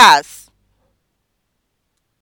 podcast.